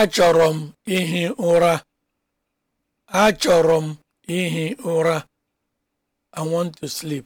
achọrọ m ihi ụra achọrọ m ihi ụra i want to sleep